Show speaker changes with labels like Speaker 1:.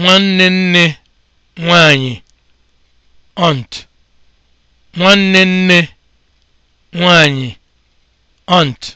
Speaker 1: nwanne nne nwanyị ont